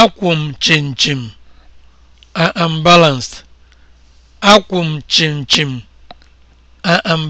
akwụ m chịnchịm I am